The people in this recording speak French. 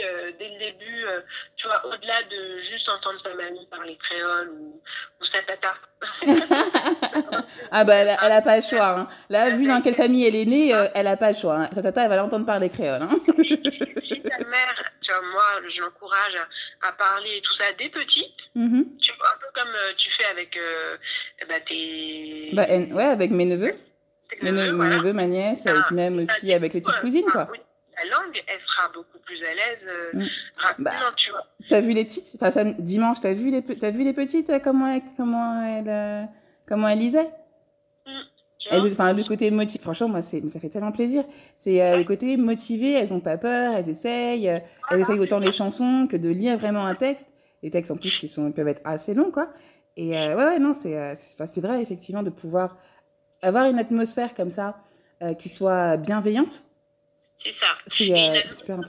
fille, euh, dès le début, euh, tu vois, au-delà de juste entendre sa mamie parler créole ou, ou sa tata. ah bah elle, elle a pas le choix. Hein. Là, vu dans quelle famille elle est née, euh, elle a pas le choix. Hein. Sa tata, elle va l'entendre parler créole. Hein. si ta mère, tu vois, moi, je l'encourage à, à, parler tout ça dès petite. Mm -hmm. Tu vois, un peu comme euh, tu fais avec euh bah, tes... Bah, elle, ouais, avec mes neveux. Mes, neveux, voilà. mes neveux ma nièce, ah, et puis même aussi avec les petites cousines, quoi. Ah, oui la langue, elle sera beaucoup plus à l'aise euh, mm. rapidement, bah, tu vois. T'as vu les petites Enfin, ça, dimanche, t'as vu, les, as vu les petites Comment euh, elles comment elle, comment elle euh, lisaient mmh. Elles, enfin, le côté motivé, franchement, moi, c'est, ça fait tellement plaisir. C'est euh, le côté motivé, elles n'ont pas peur, elles essayent, euh, elles essayent autant les chansons que de lire vraiment un texte. Les textes, en plus, qui sont, peuvent être assez longs, quoi. Et euh, ouais, ouais, non, c'est, c'est, vrai, effectivement, de pouvoir avoir une atmosphère comme ça, euh, qui soit bienveillante, C'est ça. C'est euh, super